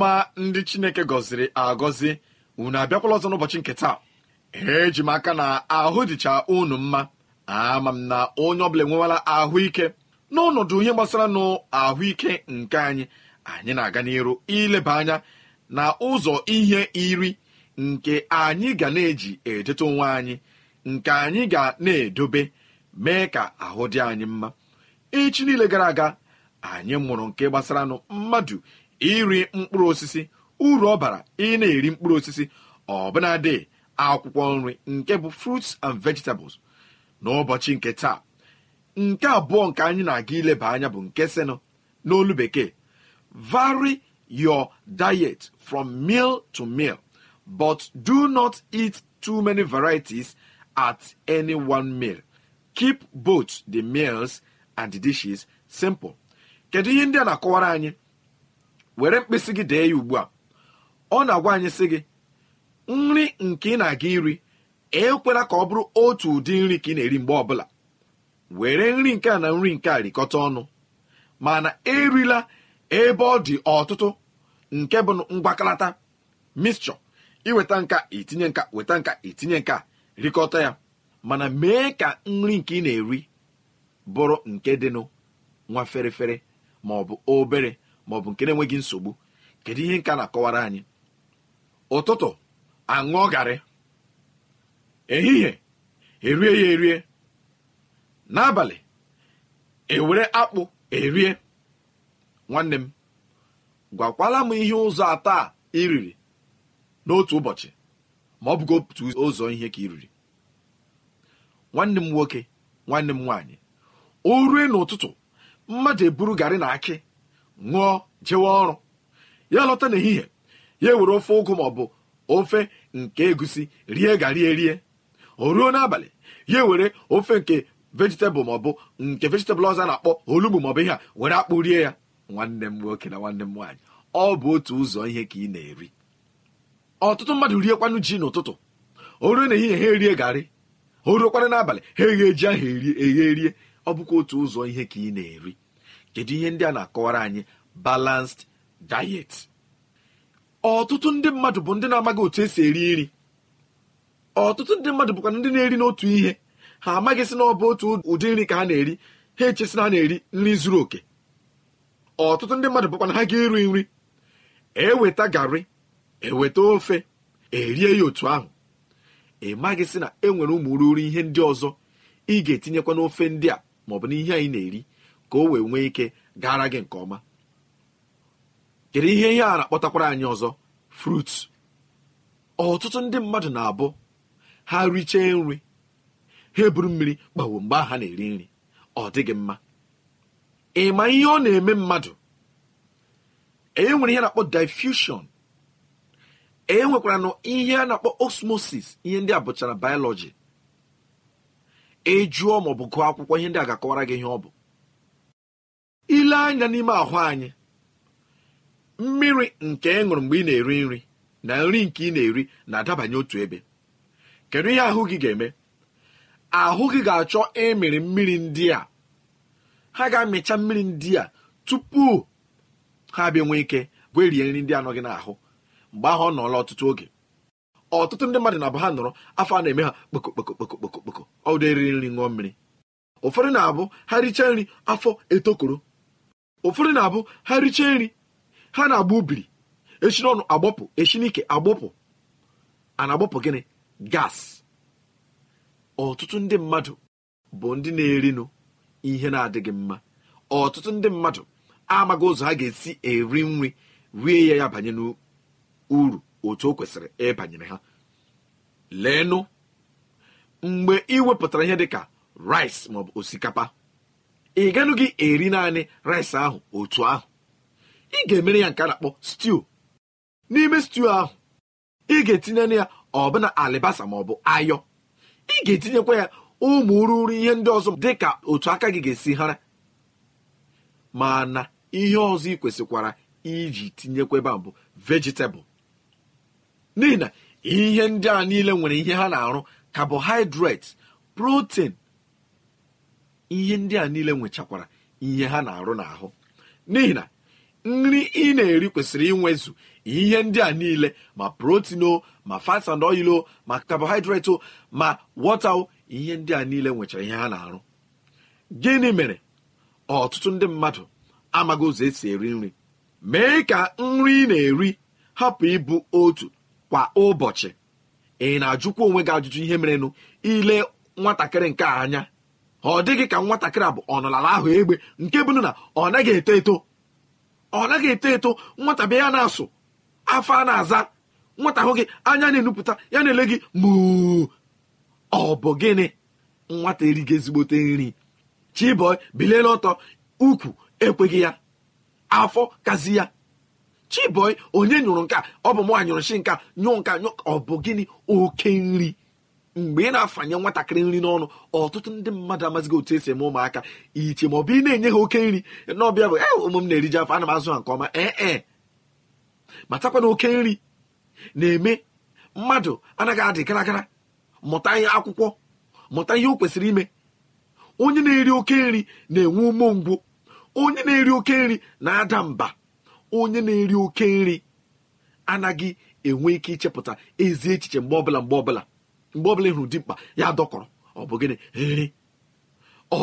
ọma ndị chineke gọziri agọzi unu abịakwala ọzọ n'ụbọchị nke taa eji m aka na ahụ dịcha unu mma ama m na onye ọbụla enwewala ahụike n'ọnọdụ ihe gbasara n'ahụike nke anyị anyị na-aga n'iru ileba anya na ụzọ ihe iri nke anyị ga na-eji edote onwe anyị nke anyị ga na-edobe mee ka ahụ dị anyị mma echi niile gara aga anyị mụrụ nke gbasara nụ mmadụ iri mkpụrụ osisi uru ọ bara ị na-eri mkpụrụ osisi dị akwụkwọ nri nke bụ fruits and vegetables n'ụbọchị nke taa nke abụọ nke anyị na-aga ileba anya bụ nke senu n'olu bekee vary your diet from meal to meal but do not eat too many varieties at any one meal keep both the meals and the dishes simple kedu ihe ndị a na-akọwara anyị were mkpịsị gị dee ya ugbu a ọ na-agwa anyị sị gị nri nke ị na-aga iri ekwela ka ọ bụrụ otu ụdị nri ka ị na-eri mgbe ọbụla were nri nke a na nri nke a rikọta ọnụ mana erila ebe ọ dị ọtụtụ nke bụ mgbakalata mixture iweta nka itinye nka weta nka itinye nka rikọta ya mana mee ka nri nke ị na-eri bụrụ nke dịnụ nwa ferefere ma ọ bụ obere ma ọ bụ nke na-enweghị nsogbu kedu ihe nka na-akọwara anyị ụtụtụ aṅụọ garị ehihie erie ya erie n'abalị ewere akpụ erie nwanne m gwakwala m ihe ụzọ atọ a iriri n'otu ụbọchị ma ọ bụgo otu ụzọ ihe ka iriri nwanne m nwoke nwanne m nwaanyị o rue n'ụtụtụ mmadụ eburu garị na akị ṅụọ jewe ọrụ ya lọta n'ehihie ya ewere ofe ụgụ ma ọ bụ ofe nke egusi rie gari erie o ruo n'abalị ya ewere ofe nke vejitabụl ma ọ bụ nke vejitabụl ọzọ na-akpọ olugbu maọbụ ihe a were akpụ rie ya nwanne m nwoke na nwanne m nwaanyị ọ bụ otu ụzọ ihe ka ị na-eri ọtụtụ mmadụ riekwanụ ji n'ụtụtụ o ruo n'ehihie ha erie garị o ruokwana n'abalị ha eghe ji ahụ eghe erie ọ bụkwa otu ụzọ ihe ka ị na-eri kedu ihe ndị a na-akọwara anyị balansed diet ọtụtụ ndị mmadụ bụ ndị na-amaghị otu esi eri nri ọtụtụ ndị mmadụ bụkwa ndị na-eri n'otu ihe ha amaghịsị na ọ bụ otu ụdị nri ka ha na-eri ha echesi na ha na-eri nri zuru oke ọtụtụ ndị mmadụ bụkwa na ha ga-eri nri eweta garị eweta ofe erie ya otu ahụ ị maghịsị na e nwere ụmụ ruru ihe ndị ọzọ ị ga-etinyekwa n'ofe ndị a maọbụ na ihe anyị na-eri ka o wee nwee ike gara gị nke ọma kedu ihe ihe a na-akpọtakwara anyị ọzọ frut ọtụtụ ndị mmadụ na-abụ ha richee nri ha eburu mmiri kpawo mgbe ha na-eri nri ọ dịghị mma ị ma ihe ọ na-eme mmadụ e nwere ihe na-akpọ diffusion e nwekwara ihe a na-akpọ osmosis ihe ndị a bụchara biology ị e ma ọ bụ gụọ akwụkwọ ihe ndị a ga-akọwara gị ihe ọ bụ ile anya n'ime ahụ anyị mmiri nke ị ṅụrụ mgbe ị na-eri nri na nri nke ị na-eri na-adabanye otu ebe kedu ihe ahụ gị ga-eme ahụ gị ga-achọ ịmịrị mmiri ndị a ha ga-amịcha mmiri ndị a tupu ha bịa nwee ike gwerie nri ndị anọghị n'ahụ mgbe ahụ ọ nọọla ọtụtụ oge ọtụtụ ndị mmadụ na-abụ ha nọrọ afọ a na-eme ha kpokokpokokpokokpokokpoko ọdụ eriri nri ṅụọ mmiri ụfọdụ na-abụ ha richaa nri afọ etokoro ụfọdụ na-abụ ha richee nri ha na-agba ubiri echi n'ọnụ agbọpụ echi n'ike agbọpụ a agbọpụ gịnị gas ọtụtụ ndị mmadụ bụ ndị na-erinụ ihe na-adịghị mma ọtụtụ ndị mmadụ amaghị ụzọ ha ga-esi eri nri rie ya ya banye n'uru otu o kwesịrị ịbanyere ha leenụ mgbe ị wepụtara ihe dịka rice maọbụ osikapa ị ganụghị eri naanị rice ahụ otu ahụ ị ga-emere ya nke a na-akpọ stew n'ime stew ahụ ị ga-etinye ya ọbụna alibasa ma ọ bụ ayọ ị ga-etinyekwa ya ụmụ ruru ihe ndị ọzọ dị ka otu aka gị ga-esi hara mana ihe ọzọ ị kwesịkwara iji tinyekweba bụ vegetable n'ihi na ihe ndị a niile nwere ihe ha na-arụ carbohydrate protein ihe ndị a niile nwechakwara ihe ha na-arụ n'ahụ n'ihi na nri ị na-eri kwesịrị inwezu ihe ndị a niile ma protein o ma fats and oil o ma carbohydrate o ma wọta o ihe ndị a niile nwechara ihe ha na-arụ gịnị mere ọtụtụ ndị mmadụ amaghị ụzọ esi eri nri mee ka nri na-eri hapụ ịbụ otu kwa ụbọchị ị na-ajụkwa onwe gị ajụjụ ihe merenụ ile nwatakịrị nke a anya ọ dịghị ka nwatakịrị bụ ọnọlala ahụ egbe nke bụ na ọ naghị eto eto ọ naghị eto eto nwata bịa ya na-asụ afọ a na-aza nwata ahụ gị anya na-enupụta ya na-ele gị mụ ọ bụ gịnị nwata erigo ezigbote nri chiboi biliela ọtọ ukwu ekweghị ya afọ kazi ya chiboi onye nyụrụ nka ọ bụ mụ shi nka nyụọ nka nyụ ọ bụ gịnị oke nri mgbe ị na-afanye nwatakịrị nri n'ọnụ ọtụtụ ndị mmadụ amazighị otu esi eme ụmụaka iche ma ọ bụ ị na-enye ha oke nri n'ọbịa bụ ee eh, ụmụ m na-eriji afọ ana m azụ ha nke ọma ee eh, ee eh. matakwa na oke nri na-eme mmadụ anaghị adị gara mụta ihe akwụkwọ mụta ihe o kwesịrị ime onye na-eri oke nri na-enwe ngwụ onye na-eri oke nri na-ada mba onye na-eri oke nri anaghị enwe ike ichepụta ezi echiche mgbe ọbụla mgbe ọbụla mgbe ọbụla ịhụrụ dimkpa ya dọkọrọ ọ bụ gịnị nri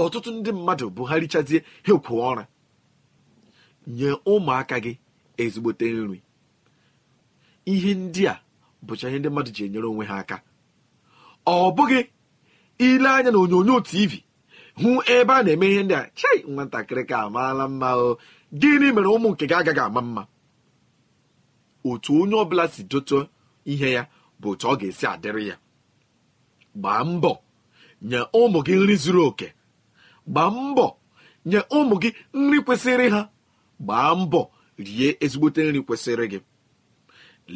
ọtụtụ ndị mmadụ bụ ha richazie ha ekwu ọra nye ụmụaka gị ezigbote nri ihe ndị a bụcha ihe ndị mmadụ ji enyere onwe ha aka ọ bụghị ile anya na onyonyo tv hụ ebe a na-eme ihe ndị a chai nwatakịrị ka amaala mma o gịnị mere ụmụ nke gị agaghị ama mma otu onye ọbụla si dote ihe ya bụ otu ọ ga-esi adịrị ya gbaa mbọ nye ụmụ gị nri zuru oke gbaa mbọ nye ụmụ gị nri kwesịrị ha gbaa mbọ rie ezigbote nri kwesịrị gị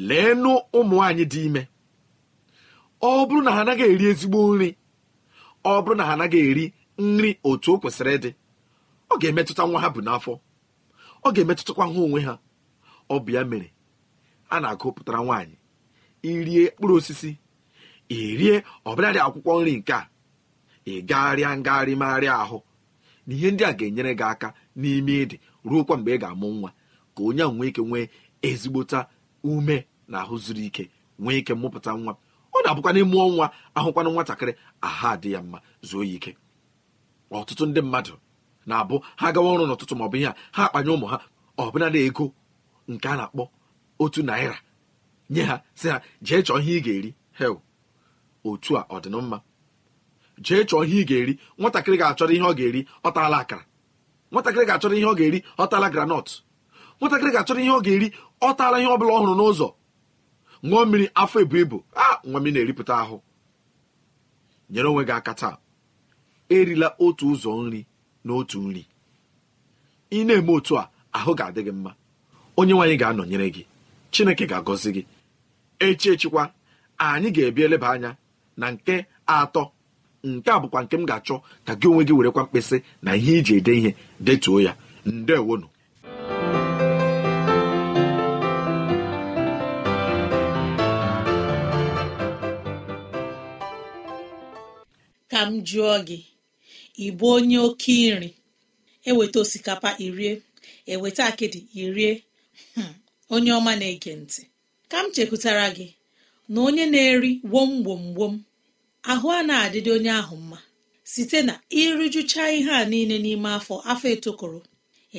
leenụ ụmụ anyị dị ime ọ bụrụ na ha anaghị eri ezigbo nri ọ bụrụ na ha anaghị eri nri otu o kwesịrị ịdị ọ ga-emetụta nwa ha bụ n'afọ ọ ga-emetụtakwa ha onwe ha ọ bụ ya mere a na-agụpụtara nwaanyị irie mkpụrụ osisi rie ọbụladị akwụkwọ nri nke a ị gagharịa ngagharị ahụ na ihe ndị a ga-enyere gị aka n'ime ịdị ruokwa mgbe ị ga-amụ nwa ka onye ahụ nwee ike nwee ezigbota ume na ahụ zuru ike nwee ike mụpụta nwa ọ na-abụkwa n'ime ọnwa ahụkwana nwatakịrị aha dị ya mma zuo ya ike ọtụtụ ndị mmadụ na-abụ ha gawa ọrụ n'ụtụtụ maọbụ ihe a ha akpanye ụmụ ha ọbụnadị ego nke a na-akpọ otu naira nye ha si ha jee chọọ ihe ị ga-eri hel otu a ọdịnmma jee chọọ ihe ị ga-eri nwatakịrị ga-achọrọ ihe ọ ga-eri ọ taala akara nwatakịrị ga-achọrọ ihe ọ ga-eri ọ granọt nwatakịrị ga-achọrọ ihe ọ ga-eri ọ ihe ọ bụla ọ hụrụ n'ụzọ ṅụọ mmiri afọ ebu ibu a nwa mmiri na-eripụta ahụ nyere onwe gị aka taa erila otu ụzọ nri na otu nri ị na-eme otu a ahụ ga-adị gị mma onye nwaanyị ga-anọnyere gị chineke ga-agọzi gị echi echikwa anyị ga ebia eleba anya na nke atọ nke a bụkwa nke m ga-achọ ka gị onwe gị werekwa mkpịsị na ihe iji ede ihe detuo ya ndewonu ka m jụọ gị ịbụ onye oke nri eweta osikapa irie eweta akịdị irie hmm, onye ọma na-ege ntị ka m chekwutara gị na onye na-eri wom wom wom ahụ a na-adịdị onye ahụ mma site na ịrụjụcha ihe a niile n'ime afọ afọ etokoro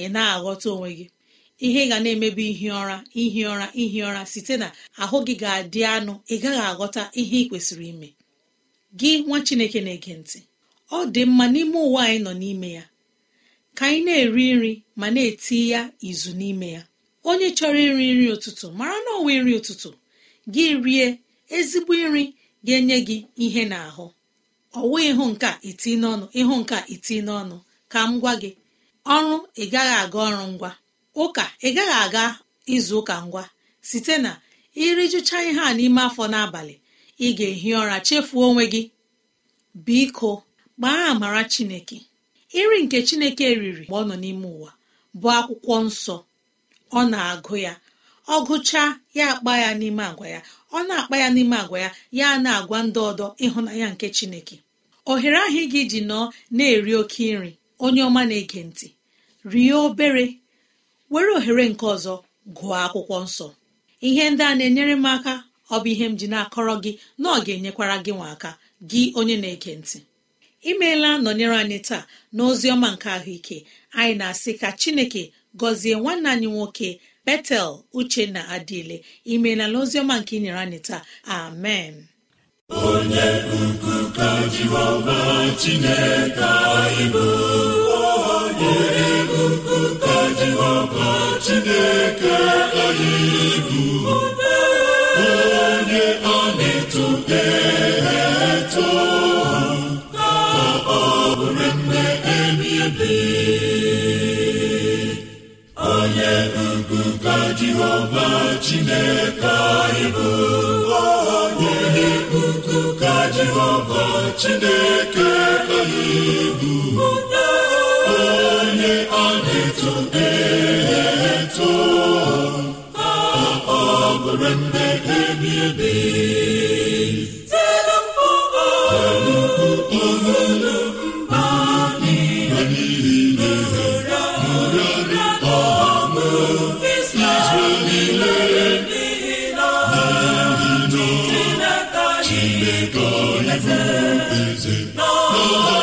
ị na-aghọta onwe gị ihe ị ga na-emebi ihi ụra ihi ụra ihi ụra site na ahụ gị ga-adị anụ ị gaghị aghọta ihe ị kwesịrị ime gị nwa Chineke na-ege ntị ọ dị mma n'ime ụwa anyị nọ n'ime ya ka anyị na-eri nri ma na-eti ya izu n'ime ya onye chọrọ iri nri ụtụtụ mara na ọwa nri ụtụtụ gị rie ezigbo nri ga-enye gị ihe n'ahụ ọwụ ịhụ nke a iti n'ọnụ ịhụ nke a iti n'ọnụ ka m gwa gị ọrụ ị gaghị aga ọrụ ngwa ụka ị gaghị aga izu ụka ngwa site na irijucha ihe a n'ime afọ n'abalị ị ga-ehi ụra chefuo onwe gị biko gbaa amara chineke iri nke chineke riri mgbe ọ nọ n'ime ụwa bụ akwụkwọ nsọ ọ na-agụ ya ọ gụchaa ya akpa ya n'ime agwa ya ọ na-akpa ya n'ime agwa ya ya na-agwa ndị ọdọ ịhụnanya nke chineke ohere ahụ ị gị ji nọọ na-eri oke nri onye ọma na-ege ntị rie obere were ohere nke ọzọ gụọ akwụkwọ nsọ ihe ndị a na-enyere m aka ọ bụ ihe m ji na-akọrọ gị na ọ ga-enyekwara gị nwa aka gị onye na-ege ntị imeela nọnyere anyị taa na ọma nke ahụike anyị na-asị ka chineke gọzie nwanne anyị nwoke betel uche na adịle imeela n'oziọma nke inyere anyị taa amen onye ukwu ka jehova chineke anyị bụ onye ukwu ka jehova chineke anyị bụ onye ọ na-eto jehova chineke anyị bụ onye ukwu ka jehova chineke anyị bụ onye a na-eto e eto ọ bụrụ mgbe ebi ebi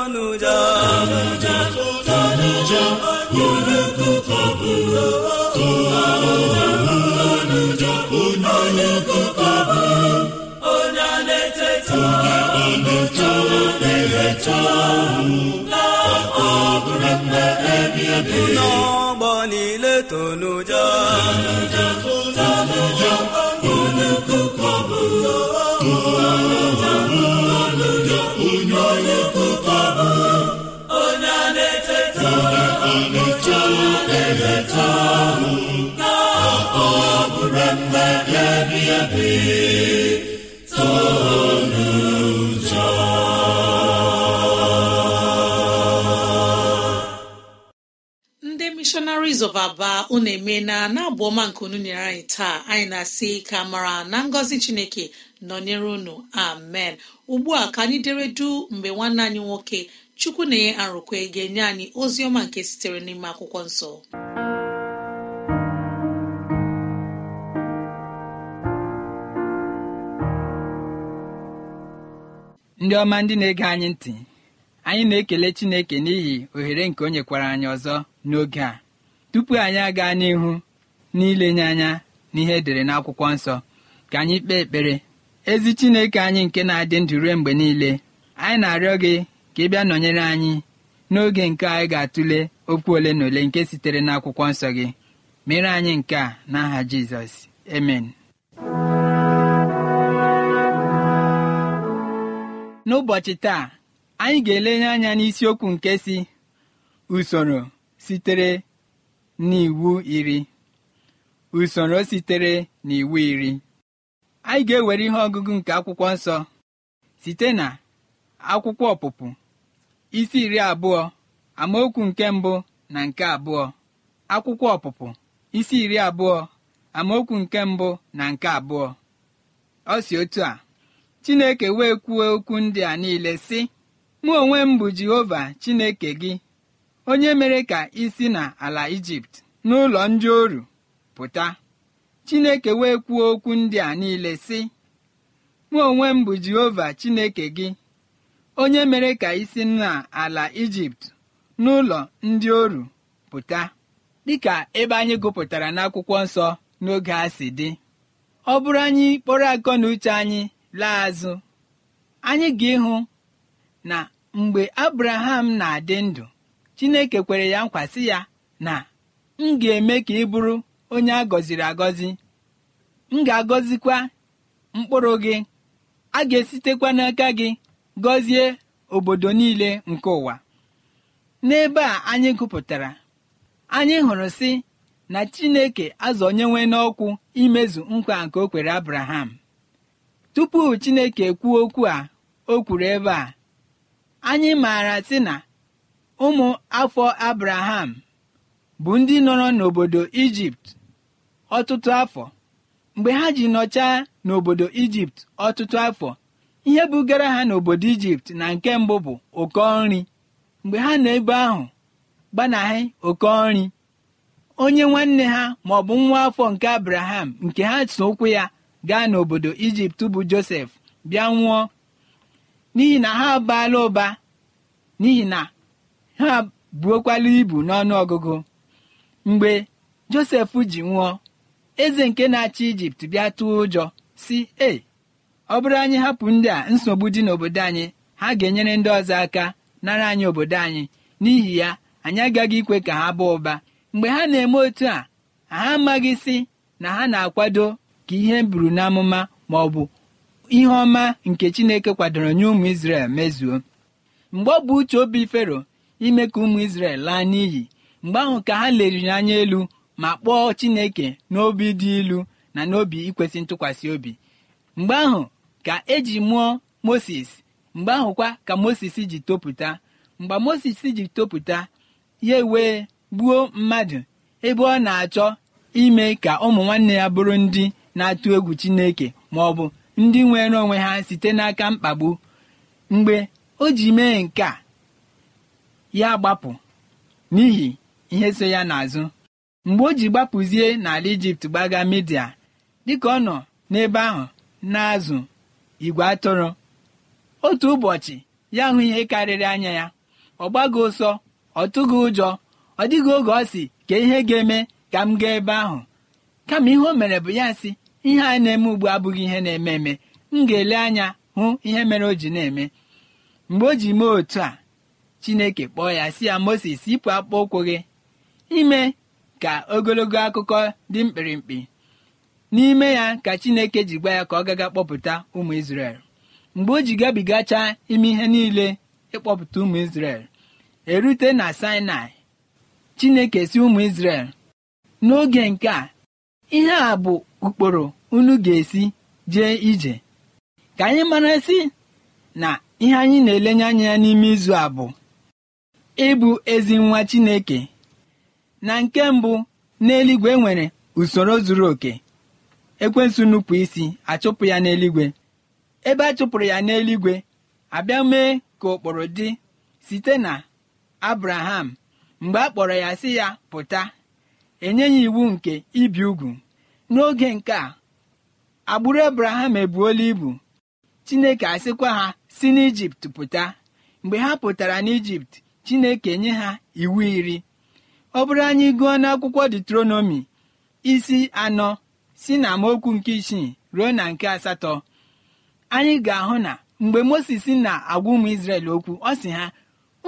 tọ̀nùjà tọ̀nùjà tọ̀nùjà olùkókò bò tọ̀nùjà tọ̀nùjà olùkókò bò onye a na-eteta n'ọgbọ niile tọ̀nùjà tọ̀nùjà tọ̀nùjà ndị eweta ka ọ Missionaries of Aba unu emeela na abụ ọma nke unu nyere anyị taa anyị na-asị ka mara na ngọzi Chineke nọnyere unu amen ugbu a ka anyị dere du mgbe nwanne anyị nwoke chukwu na ye arụkwe ga-enye anyị ozi ọma nke sitere n'ime akwụkwọ nsọ ndị ọma ndị na-ege anyị ntị anyị na-ekele chineke n'ihi ohere nke o nyekwara anyị ọzọ n'oge a tupu anyị aga n'ihu n'ilenye anya n'ihe edere n'akwụkwọ nsọ ka anyị kpee ekpere ezi chineke anyị nke na-adị ndụ rue mgbe niile anyị na-arịọ gị ka ị bịa nọnyere anyị n'oge nke anyị ga-atụle okwu ole na ole nke sitere n'akwụkwọ nsọ gị mere anyị nke a n'aha Jizọs emen n'ụbọchị taa anyị ga-elenye anya n'isiokwu nke si usoro sitere n'iwu iri usoro sitere n'iwu iri anyị ga-ewere ihe ọgụgụ nke akwụkwọ nsọ site na akwụkwọ ọpụpụ isi iri abụọ amaokwu nke mbụ na nke abụọ akwụkwọ ọpụpụ isi iri abụọ amaokwu nke mbụ na nke abụọ ọ si otu a Chineke wee kwuo okwu ndị a niile sị mụ onwe m Jehova Chineke gị onye mere ka isi n'ala na ala Ijipt n'ụlọ ndị oru pụta Chineke wee kwuo okwu ndị a niile sị mụ onwe m bụ Jehova Chineke gị onye mere ka isi n'ala ijipt n'ụlọ ndị oru pụta dịka ebe anyị gụpụtara n'akwụkwọ nsọ n'oge a si dị ọ bụrụ anyị kpọrọ akọ na uche anyị laa azụ anyị ga-ịhụ na mgbe abraham na-adị ndụ chineke kwere ya nkwasị ya na m ga-eme ka ị bụrụ onye a gọziri agọzi m ga-agọzikwa mkpụrụ gị a ga-esitekwa n'aka gị gọzie obodo niile nke ụwa n'ebe a anyị gụpụtara anyị hụrụ si na chineke nwee n'ọkwụ imezu nkwa nke o kwere abraham tupu chineke kwuo okwu a o kwuru ebe a anyị maara si na ụmụ afọ abraham bụ ndị nọrọ n'obodo ijipt ọtụtụ afọ mgbe ha ji nọchaa n'obodo ijipt ọtụtụ afọ ihe bugara ha n'obodo ijipt na nke mbụ bụ oke nri mgbe ha nọ ebe ahụ gbanahị oke nri onye nwanne ha ma ọ bụ nwa afọ nke abraham nke ha so ụkwụ ya gaa n'obodo ijipt bụ josef bịa nwụọ n'ihi na ha abaala ụba n'ihi na ha buokwala ibu n'ọnụ ọgụgụ mgbe josef ji nwụọ eze nke na-achị ijipt bịa tụọ ụjọ si e ọ bụrụ anyị hapụ ndị a nsogbu dị n'obodo anyị ha ga-enyere ndị ọzọ aka nara anyị obodo anyị n'ihi ya anyị agaghị ikwe ka ha baa ụba mgbe ha na-eme otu a ha amaghị sị na ha na-akwado ka ihe buru n'amụma ma ọ bụ ihe ọma nke Chineke kwadoro nye ụmụ Izrel mezuo mgbe ọ bụ uche obi Fero ime ka ụmụ Izrel laa n'iyi mgbe ahụ ka ha leriri anya elu ma kpọọ Chineke n'obi dị ilu na n'obi ikwesị ntụkwasị obi mgbe ahụ ka eji mụọ moses mgbe ahụkwa ka moses ji topụta mgbe moses ji topụta ya wee gbuo mmadụ ebe ọ na-achọ ime ka ụmụ nwanne ya bụrụ ndị na-atụ egwu chineke ma ọ bụ ndị nwere onwe ha site n'aka mkpagbu mgbe o ji mee nke a ya gbapụ n'ihi ihe so ya n'azụ mgbe o ji gbapụzie n'ala ijipt gbaga midia dịka ọ nọ n'ebe ahụ na-azụ igwe atụrụ otu ụbọchị ya hụ ihe karịrị anya ya ọ gbago ụsọ ọ tụghị ụjọ ọ dịghị oge ọ sị ka ihe ga-eme ka m gaa ebe ahụ kama ihe o mere bụ ya sị ihe a na-eme ugbu abụghị ihe na-eme eme m ga-ele anya hụ ihe mere o ji na-eme mgbe o ji mee otu a chineke kpọọ ya si ya moses yipụ akpọ ụkwụ gị ime ka ogologo akụkọ dị mkpirikpi n'ime ya ka chineke ji gwa ya ka ọ gaga kpọpụta ụmụ isrel mgbe o ji gabigachaa ime ihe niile ịkpọpụta ụmụ isrel erute na sinai chineke si ụmụ isrel n'oge nke a ihe a bụ ụkpụrụ unu ga-esi jee ije ka anyị mara si na ihe anyị na-elenye anya ya n'ime izu a bụ ịbụ ezi nwa chineke na nke mbụ n'eluigwe nwere usoro zuru oke ekwensu nupụ isi achụpụ ya n'eluigwe ebe a chụpụrụ ya n'eluigwe abịa mee ka ụkpụrụ dị site na abraham mgbe a kpọrọ ya si ya pụta enye ya iwu nke ibi ugwu n'oge nke a agbụrụ abraham ebuola ibu chineke asịkwa ha si n'ijipt pụta mgbe ha pụtara n'ijipt chineke nye ha iwu iri ọ bụrụ anyị gụọ n'akwụkwọ detronomi isi anọ si na amaokwu nke isii ruo na nke asatọ anyị ga-ahụ na mgbe moses na-agwa ụmụ isrel okwu ọ sị ha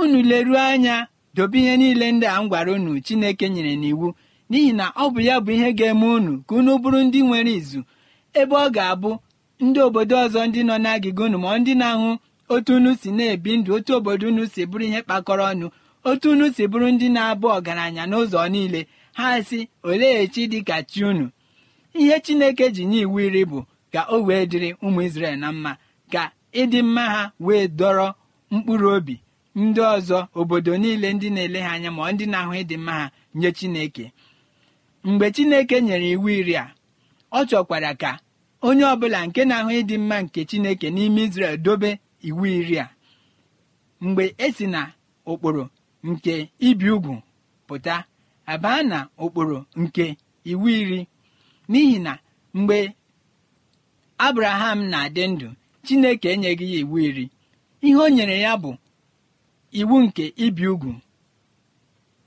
unu leruo anya dobe ihe niile ndị a m gwara unu chineke nyere n'iwu n'ihi na ọ bụ ya bụ ihe ga-eme unu ka unu bụrụ ndị nwere izu ebe ọ ga-abụ ndị obodo ọzọ ndị nọ n'agịga unu ma ndị na-ahụ otu unu si na-ebi ndụ otu obodo unu si bụrụ ihe kpakọrọ ọnụ otu unu si bụrụ ndị na-abụ ọgaranya n'ụzọ niile ha si olee echi dịka chi unu ihe chineke ji nye iwu iri bụ ka o wee dịrị ụmụ isrel na mma ka ịdị mma ha wee dọrọ mkpụrụ obi ndị ọzọ obodo niile ndị na-ele ha anya ma ndị na-ahụ ịdị mma ha nye chineke mgbe chineke nyere iwu iri a ọ chọkwara ka onye ọbụla nke na-ahụ ịdị mma nke chineke n'ime isrel dobe iwu iri a mgbe esi na ụkpụrụ nke ibi ugwu pụta abaa na ụkpụrụ nke iwu iri n'ihi na mgbe abraham na-adị ndụ chineke enyeghị ya iwu iri ihe o nyere ya bụ iwu nke ibi ugwu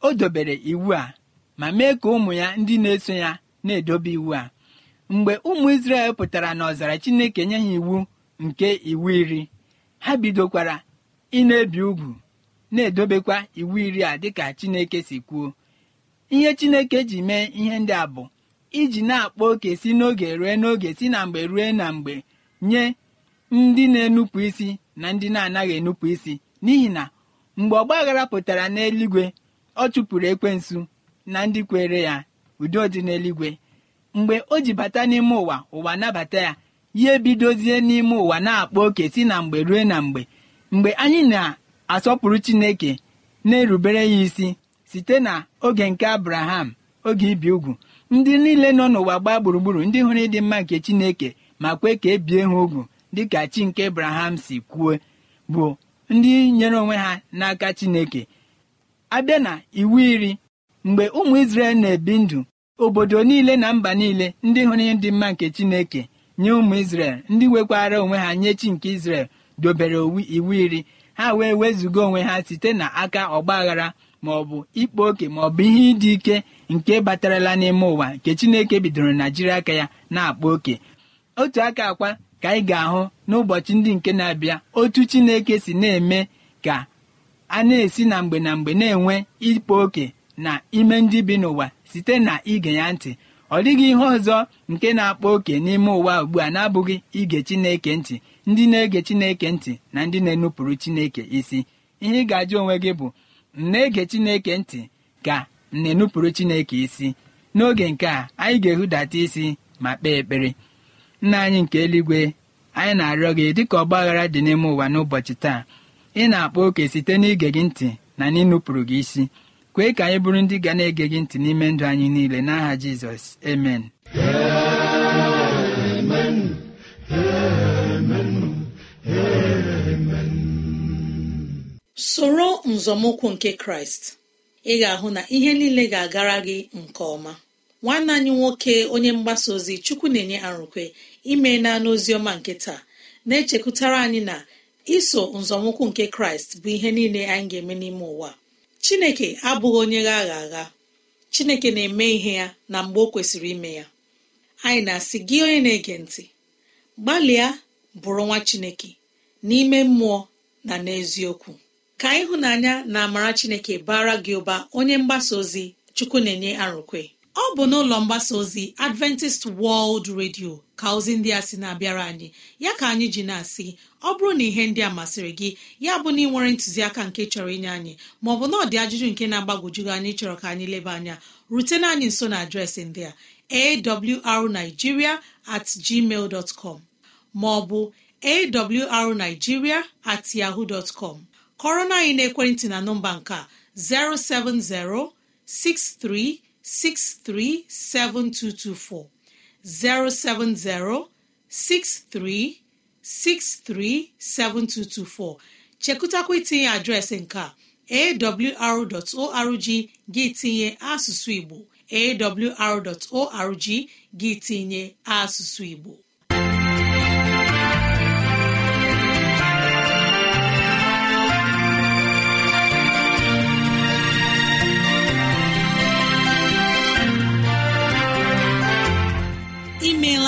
o dobere iwu a ma mee ka ụmụ ya ndị na-eso ya na-edobe iwu a mgbe ụmụ isrel pụtara na ọzara chineke nye ha iwu nke iwu iri ha bidokwara ị na-ebi ugwu na-edobekwa iwu iri a dịka chineke si kwuo ihe chineke ji mee ihe ndị a bụ iji na akpọ oke si n'oge rue n'oge si na mgbe rue na mgbe nye ndị na-enupụ isi na ndị na-anaghị enupụ isi n'ihi na mgbe ọgbaghara pụtara n'eluigwe ọ chụpụrụ ekwensu na ndị kwere ya udo dị n'eluigwe mgbe o ji bata n'ime ụwa ụwa nabata ya ya ebidozie n'ime ụwa na akpọ oke si na mgbe rue na mgbe mgbe anyị na-asọpụrụ chineke na-erubere ya isi site na oge nke abraham oge ibi ugwu ndị niile nọ n'ụwa gbaa gburugburu ndị hụrụ ịdị mma nke chineke ma kwe ka e bie ha ugwu dịka chi nke abraham si kwuo bụ ndị nyere onwe ha n'aka chineke abịa na iwu iri mgbe ụmụ isrel na-ebi ndụ obodo niile na mba niile ndị hụrụ ịdị mma nke chineke nye ụmụ isrel ndị nwekwara onwe ha nye chi nke isrel dobere iwu iri ha wee wezuga onwe ha site n'aka ọgba aghara bụ ịkpa oke bụ ihe ịdị ike nke batarala n'ime ụwa nke chineke bidoro na jiri aka ya na-akpa oke otu aka akwa ka anyị ga-ahụ n'ụbọchị ndị nke na-abịa otu chineke si na-eme ka a na-esi na mgbe na mgbe na-enwe ịkpa oke na ime ndị bi n'ụwa site na ige ya ntị ọ dịghị ihe ọzọ nke na-akpa oke n'ime ụwa ugbu a na-abụghị ige chineke ntị ndị na-ege chineke ntị na ndị na-enupụrụ chineke isi ihe ị ga-ajụ onwe gị bụ na-ege chineke ntị ka na-enupụrụ chineke isi n'oge nke a anyị ga-ehudata isi ma kpee ekpere nna anyị nke eluigwe anyị na-arịọ gị dịka ọgba aghara dị n'ime ụwa n'ụbọchị taa ị na-akpọ oke site n'ige gị ntị na n'ịnụpụrụ gị isi kwee ka anyị bụrụ ndị ga na-ege gị ntị n'ime ndụ anyị niile n'aha Jizọs amen soro nzọmụkwụ nke kraịst ị ga-ahụ na ihe niile ga-agara gị nke ọma nwanne anyị nwoke onye mgbasa ozi chukwu na-enye arụkwe ime na n'oziọma nke taa na-echekwutara anyị na iso nzọmụkwụ nke kraịst bụ ihe niile anyị ga-eme n'ime ụwa chineke abụghị onye gha agha chineke na-eme ihe ya na mgbe o kwesịrị ime ya anyị na-asị gị onye na-ege ntị gbalịa bụrụ nwa chineke n'ime mmụọ na n'eziokwu ka ịhụnanya na amara chineke bara gị ụba onye mgbasa ozi chukwu na-enye arụkwe ọ bụ n'ụlọ mgbasa ozi adventist world radio ka ozi ndị a sị na-abịara anyị ya ka anyị ji na-asị ọ bụrụ na ihe ndị a masịrị gị ya bụ na ị nwere ntụziaka nke chọrọ inye anyị maọbụ na ọ dị ajụjụ nke na agbagojugị anyị chọrọ ka anyị leba anya rutena anyị nso na adreesị ndị a awrnigeria at gmail dot com maọbụ awrnigeria at yahoo dot kọrọ na anyị n'ekwentị na nọmba nke 07063637224 07063637224 chekụtakwa itinye adreesị nke awr.org gị tinye asụsụ Igbo awr.org gị tinye asụsụ Igbo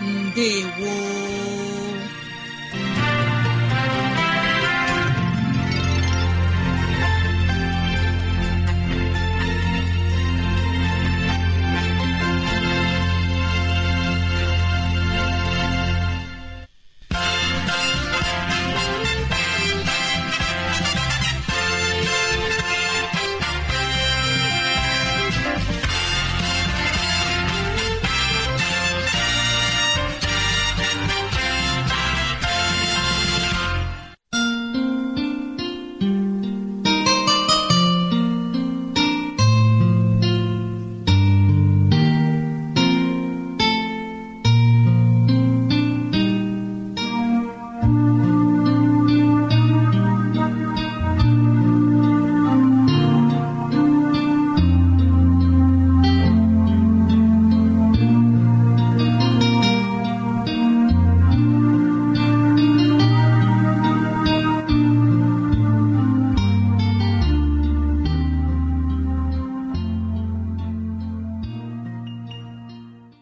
Ndewo